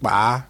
Kpaa.